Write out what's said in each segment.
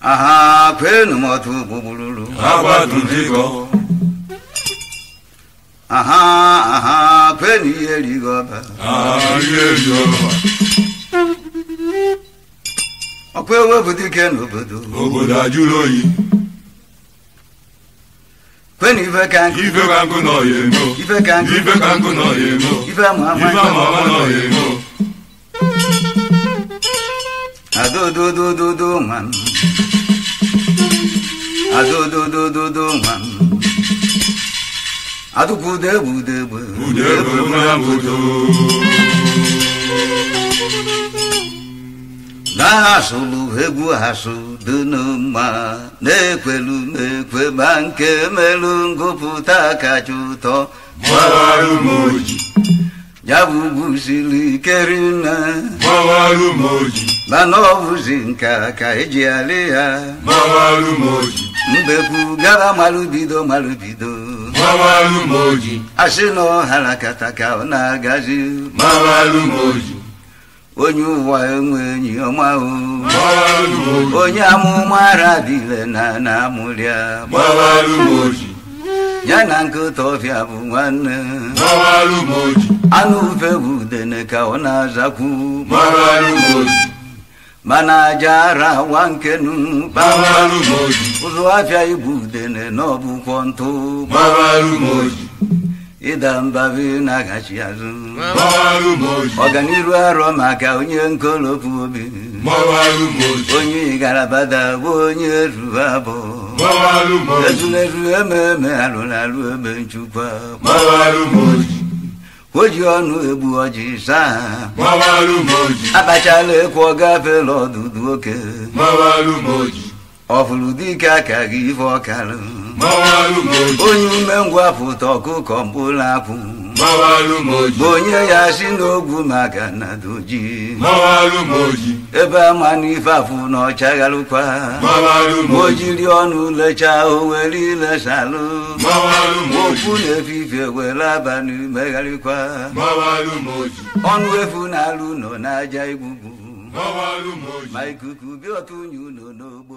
아하 괴누마 두부부루루 아바 두디고 아하 아하 괴니엘리가 아예리가 어괴왜 부디게 누부두 오보다 주로이 When Ife ka nkụ Ife ka nkụ nọ ya emo Ife ka nkụ Ife ka nkụ nọ ya emo Ife ama ama Ife ama ama nọ ya emo Adododododo man Adododododo man Adubudebudebe Budebe mlambudo Na sulu egwu ha sulu Dunuma na-ekwelu nke melu ngụpụta kacha ụtọ gbawarụ m oji m oji mana ọ bụzi nka ka eji alị ya gbawarụ m oji mbekwu gara malụbido malụbido m oji asị na ọhara kata ka ọ na-agazi gbawarụ m onye ụwa enwe enyi onye amụma arabile na na amụrịa ya na nkịta ọfịa bụ nwanne anụ ufe bụ dene ka ọ na-azakwu mana aja ara nwa nkenu ụzọ afịa ibu udene na ọbụkwọ ntụ ịda mba na-agachi azụ ọganiru arọ maka onye nkolopu obi onye igarabada bụ onye ruru abụ ezuleru ememe alụrụ egbe ebe nchukwa oji ọnụ egbu ọjị saa akpachala ekwu gafela ọdụdụ oke ọfụrụ dike aka gị ife ọkarụ onye umengwụ apụta ọkụkọ mkpụrụ apụ onye ya si n'ogwu maka na doji ebe ama n'ife afụ na ọchagharụkwa o jiri ọnụ lechaa o were ilesalụ okwu na-efife were abalị megharịkwa ọnụ efu na alụ nọ n'aja igwugwu ma ikuku bịa otu unyi ụlọ n'ogbo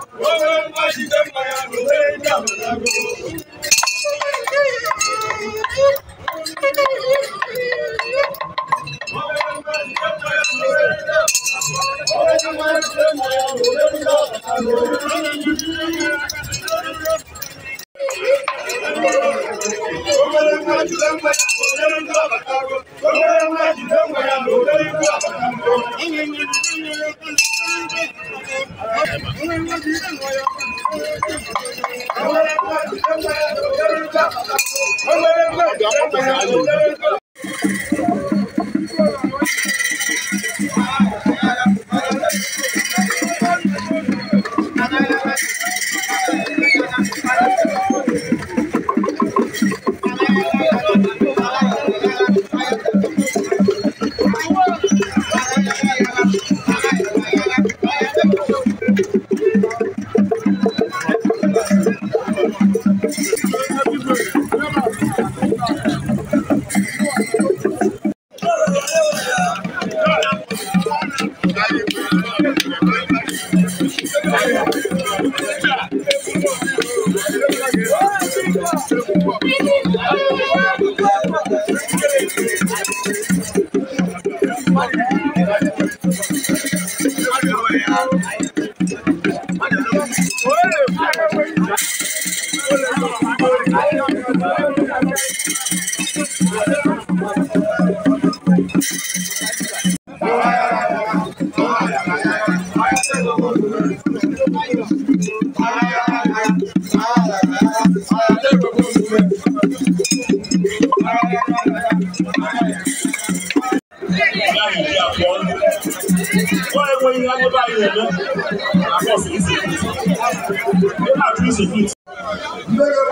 Oh, oh, oh! bá ṣiṣẹ́ payà lóore ní àbàdàgbò.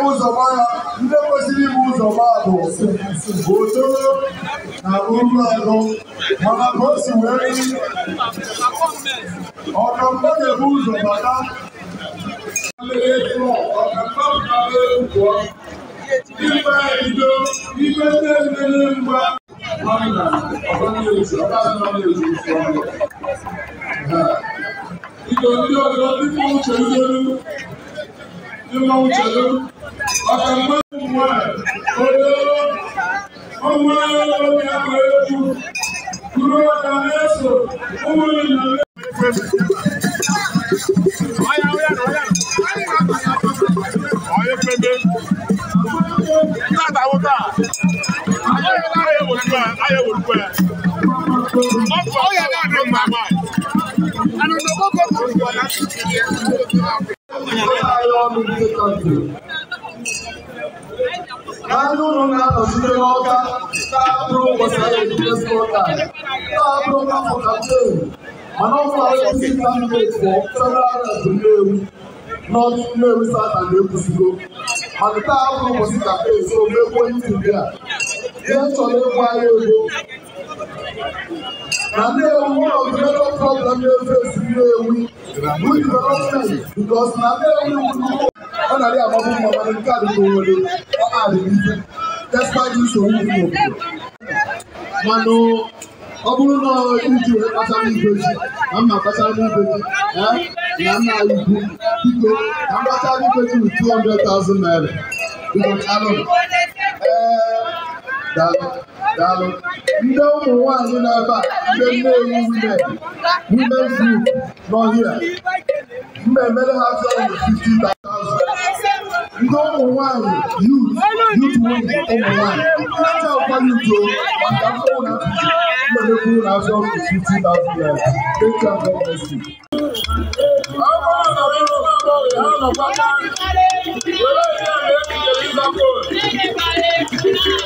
ụzọ gbara ndị kwesịrị ibu ụzọ gbaa bụ otoro na uru agụ mana ka o si wee ọkamba na-ebu ụzọ bata Ibe bido ibe ndị emere mgba Ido ndị ọzọ dịka uche ndolu Imawuchelu, Ọ̀kàngbọ́n Mùmọ́, Odò, ọmọ ọmọ ẹ̀kọ́ ẹ̀kú, dúró ọ̀kà ẹ̀sọ̀, ọmọ ìlànà. Ọ̀yà ọ̀yà ọ̀yà. Ọ̀yà pẹ̀lú. Láti àwọn náà, ayé wòlúwẹ̀, ayé wòlúwẹ̀. Ọ̀pọ̀ ọ̀yà náà ló ń gbà máa. Ànàdàn kọ́kọ́ kọ́kọ́ na ndị ụlọ na-anọchite n'ọka na-abụrụ ụbọchị ahụ ebidozi ụka na-abụrụ afọ kampen mana ọkụ ahụzi kampen fọ federal red nnewu n'ọdụ nnewu sata na-ekwusigo mana taa abụrụ ụbọchị kampen so megbuo ntuli a ihe chọrọ ịgwa ya ego na na-ewu one of the na-efe ewu with na na-ewu nnukwu ọ na-adị mma nke a dịka owere ọ adịghị nsogbu dị n'obodo mana ọ bụrụ na iji kpachara ibe ji na mma kpachara ibe ji na nna biko na mkpachara ji naira ụbọchị ee daa. Daalụ. Ndị ụmụ nwaanyị nọ ebe a ndị nnewi women women's group nọ hia mba emere ha sọrọ 50,000 ndị ụmụ nwaanyị youth youth women ụmụ nwaanyị aja ụkwa yuto maka mkpụrụ na mmepekwuru na azọ 50,000 naira dịka gọọmenti Thank you.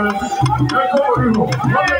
Thank you.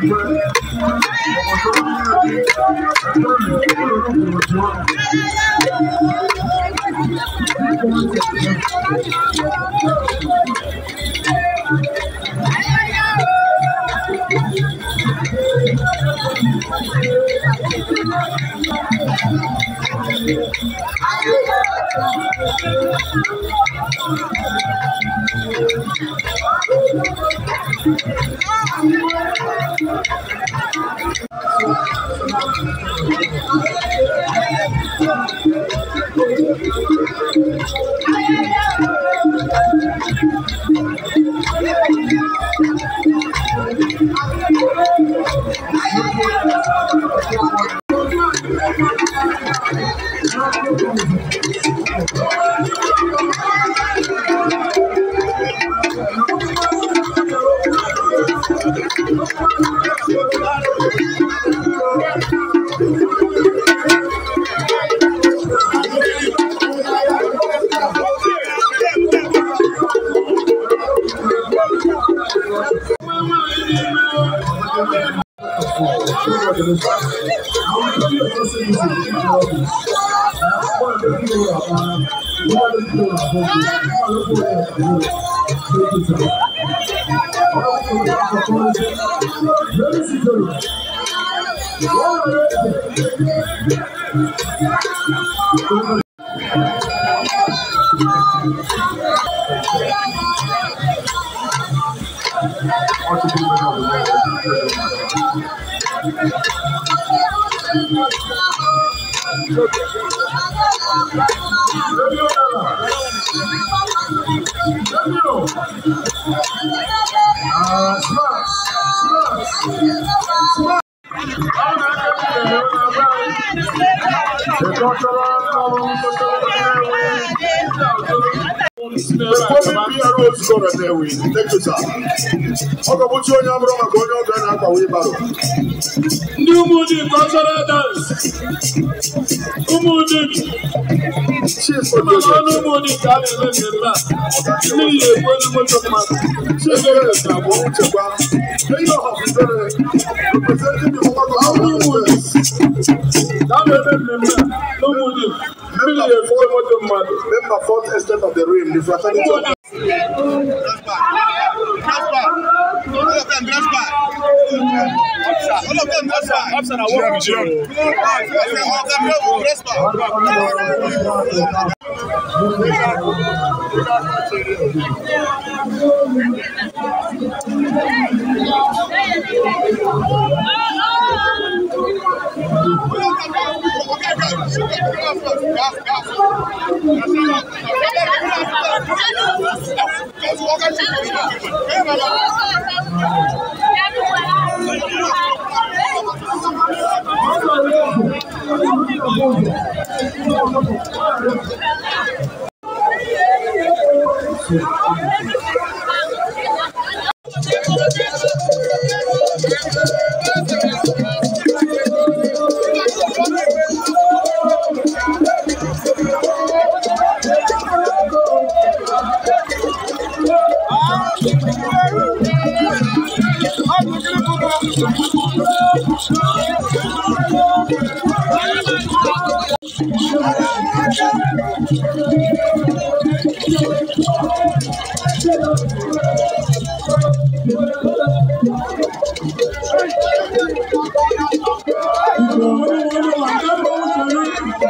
Thank you. Não, go. Uh, smash, smash, smash. The ọkọbụchi onye abụrụ maka onye ọbịa na-akpawa ịbarụ ndị ụmụdị kọlchọral dans ụmụdị Ọlọ́run mo the fourth estate of the realm, the fraternity. Dress back. Dress back. Dress back. All of them prosper. Officer, I want to All of them prosper. Thank you. すいません。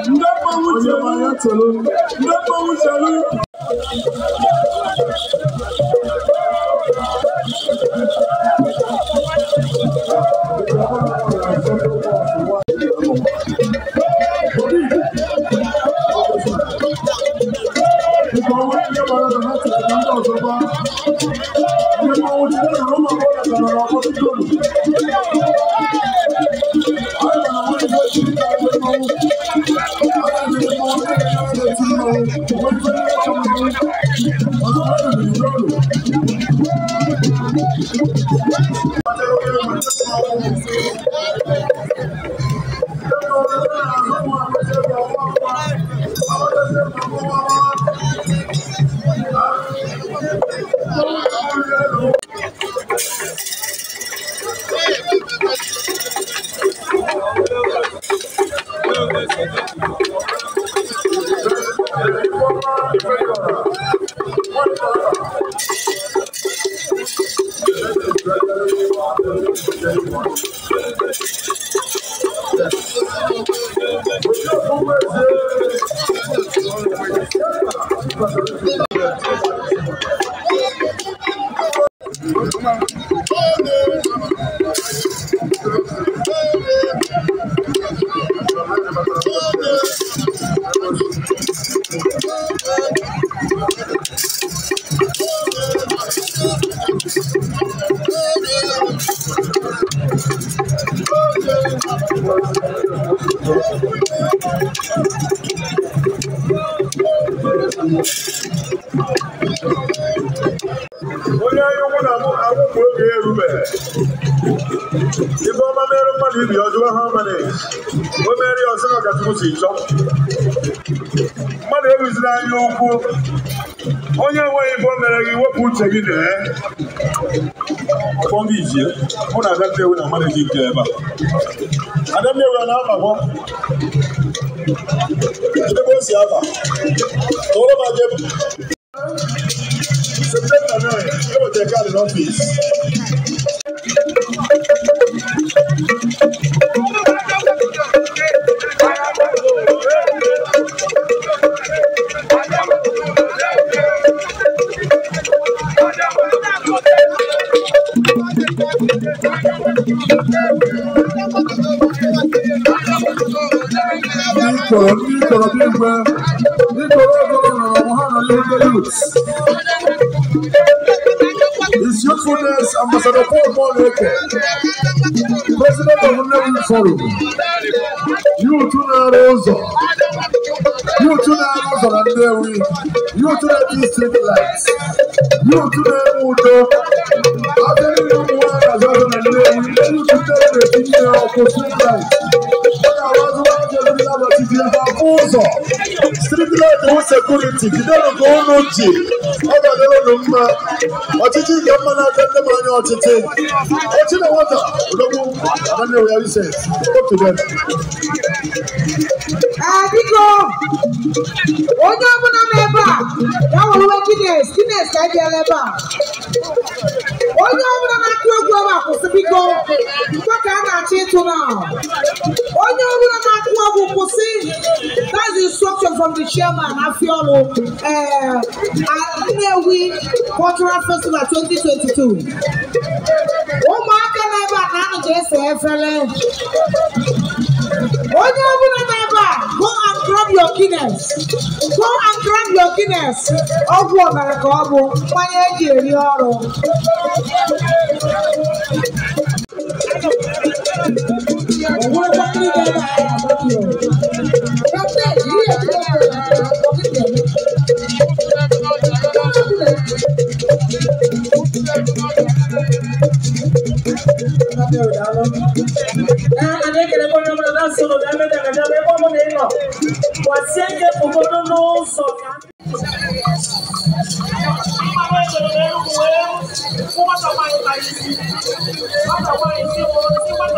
Ndakpa wuchelu, ndakpa wuchelu, Yeah. ibe ọma mere mmadụ ibi ọjụwa ha mana o mere ya ọsọ ka Ọkachukwu si chọọ mmadụ ewuzila anya ukwu onye enweghị ibo mere gị wepụ uche gị na-e fọm ije mụ na Adannewi na mmadụ dị nke ebe a Adannewi a na-abagọ ebe o si aba tụọrọ m aja So take a out an office. sọ̀rọ̀ nítorí ọ̀gbọ́n ọ̀rọ̀ ọ̀hún hàn lórí youths. Ambassador Paul Paul Eke, President of Nnewi Forum, you two na-arụ ụzọ, you two na-arụ ụzọ na Nnewi, you two na-eji street lights, you two na-enwe udo, abịa niile ụmụ nwaanyị azụ azụ na Nnewi, you two na-eji nne ọkụ street lights, ọ ga-abazụ nwaanyị azụ na-abatịzi ebe afọ ụzọ, street light wụ sekuriti, jidenu ka unu ji ọdọ lọrọ ló na mọ ọtítí ìjọ mọ náà fẹẹ mọ ní ọtítí ọtí náà wọn tà ológun àbáni onye ọbụla na-ebe a, ya wụrụ Guinness, Guinness ka e ji ebe a onye ọbụla na-akụ egwu ebe a kwụsị biko mkpa ka a na-achọ ịtụ na onye ọbụla na-akụ egwu kwụsị that's the instruction from the chairman afiolu nnewi cultural festival 2022 ụmụaka na-ebe a na anụ ga-ese efere onye ọbụla na-ebe a go and grab your guinness go and grab your guinness ọgwụ ọbara ka ọ bụ mmanya eji eri ọrụ Mata o pai, o não mata o pai, o pai,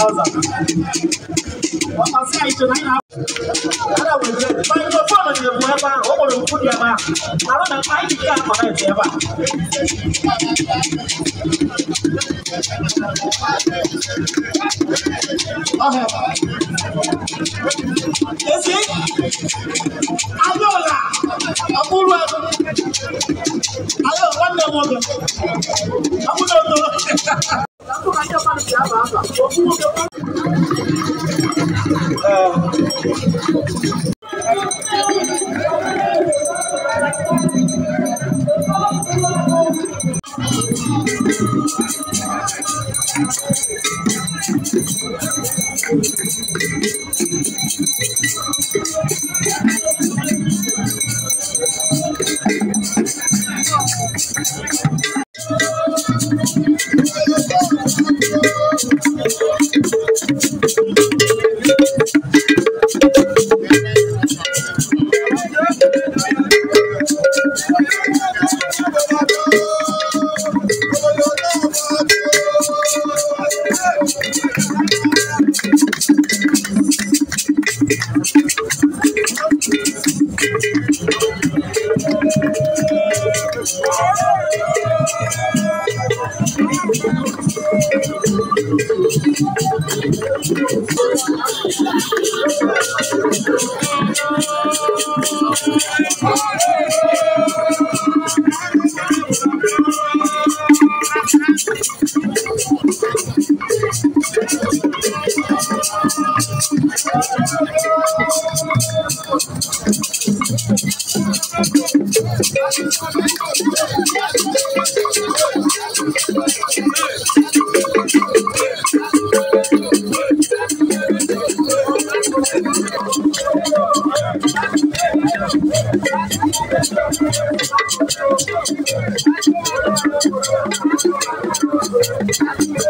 thousand. What was I to nine hours? Ada wuli bai ko fɔ ma ɲɛ bɔɛ ba o kɔni ku diɛ ba a bɛ na fa yi ka kɔrɔ ye diɛ ba. Ese ayo la a kuru a ayo wanda mɔkɛ a kuta o tɔlɔ. ana na kwalitigi aba aba Thank you.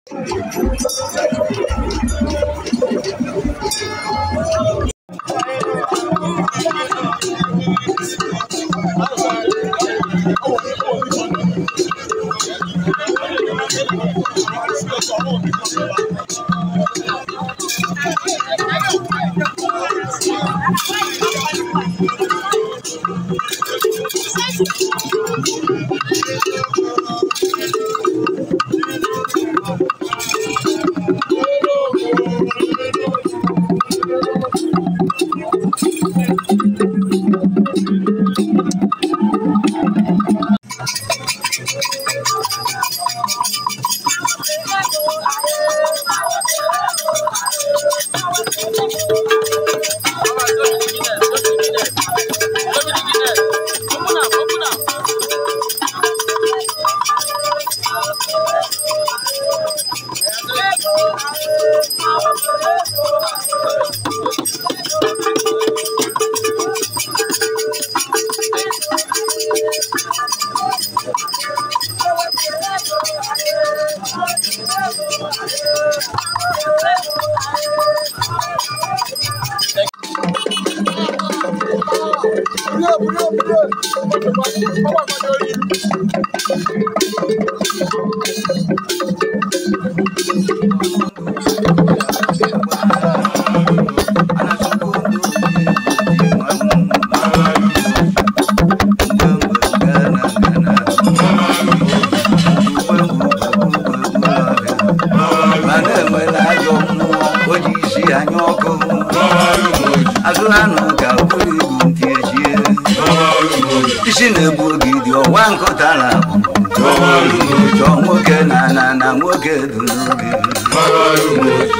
chọ nwoke na na na nwoke du n'obi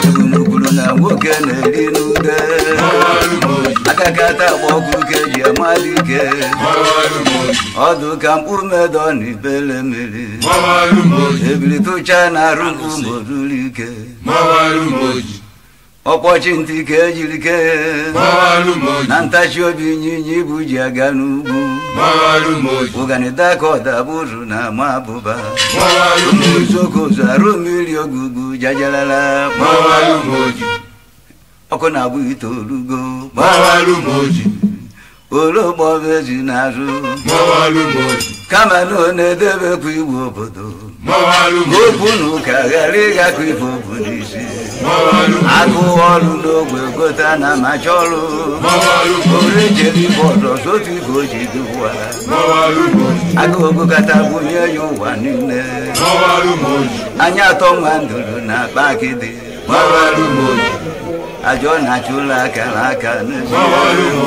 ebumnukwuru na nwoke na-eri n'ude akakata agbaọkụ ka eji amadụ ike ọdụ ka mkpụmedọ na ibele mmiri ebili tụcha na arụ mkpụmoruru ike ọkpọchi ntị ka ejiri kee na ntachi obi ịnyịnya ibu ji aga n'ugwu ụganida ka ụzụ na ama abụba uzokozu arụ mmiri ogugu jajalala ọkụ na-abụ itoolugo ologbo ezi na azụ kama na ọ na-edebekwa iwu obodo obunu ka ghara ịgakọ ife obodo isi agụ ọrụ n'ogwe gote na amacha ọrụ ore jere ibe ọdọ sotu ife o ji dịwa agụogokata bunye ya ụwa niile anya atọ nwa nduru na akpa akịdị ajọ na-achụ ụlọ aka na aka n'ezi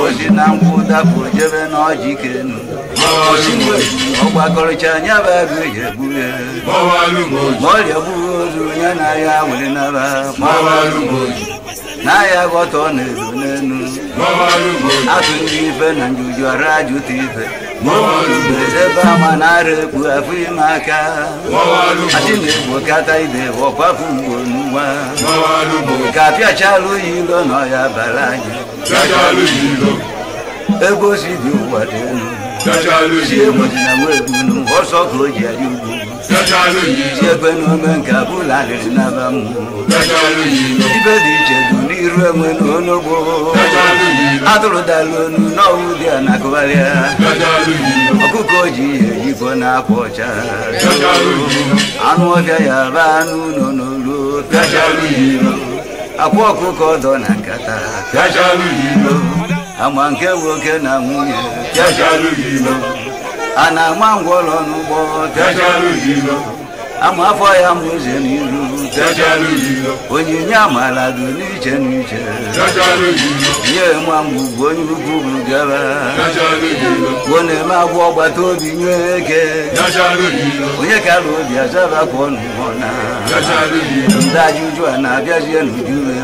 ozi na nkwụ dapụ jebe na ọjị kenu ọgbakọrịcha anya bụ agụ eji egbu ya ma ọrịa gbughị onye na-ahịa nwere nara n'ahịa ghọta ọ na-ezo n'elu atụ ndị ife na njuju ara ajụta ife ebe ama na-ara ekpu afọ ime aka achị na-egbo kata ide ọkwapụ mgbo n'ụwa ka apịachala oyi ilo na ọya bara anyị ebe osi dị ụwa dị elu Sociologie mo ti na wo egunu o sọ kuro jẹ yugu. Sociologie ṣe pẹnu ọmọ nka bula rẹ naba mu. Sociologie ibẹ di ìjẹ̀dù ní irú ẹ̀wọ̀n ní onogbo. Sociologie atúrò da lónú náà wù di ànàkọ́bárẹ́. Sociologie ọkùkọ jì èyí kọ́ náà pọ̀ ọ̀chá. Sociologie anú ọ̀fẹ́ yàrá anú nọ̀nà ama nke nwoke na nwunye a na-ama ngwọrọ n'ụgbọ ama afọ ya ma ụzọ n'iru onyinye amala dị n'iche n'iche nye ma mgbe onye ukwu bugara gbuo na-eme agwọ ọgbata obi nye eke onye kara obi azara kwa ọnụ ọna ndị ajụjụ a na-abịazie n'uju ya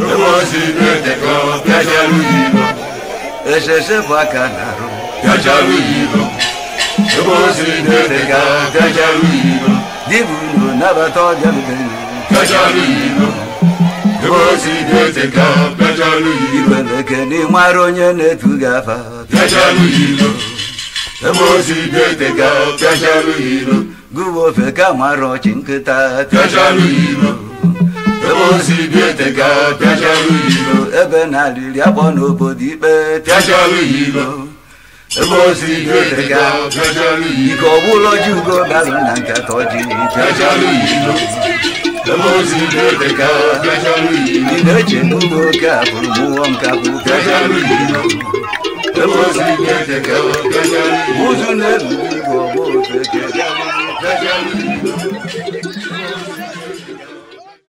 Ruosineteko, Kajalu Yibo. Esheshe Bakanaru, Kajalu Yibo. Ruosineteka, Kajalu Yibo. Dibuno Nabato Jalubenu, Kajalu Yibo. Ruosineteka, Kajalu Yibo. Ibelekeni Maronye Netugafa, Kajalu Yibo. Ruosineteka, Kajalu Yibo. Gubo Feka Maro Chinkita, Kajalu Yibo. ozi bietega pịajara ilo ebe na aliri n'obodo ikpe pịajara ilo ebe ozi bietega ike ọ bụla ugo na nkata ọjị pịajara ilo ilo eche n'ugbo oke a bụrụ mụọ ụzụ na-ebu ọgbọ ofe ilo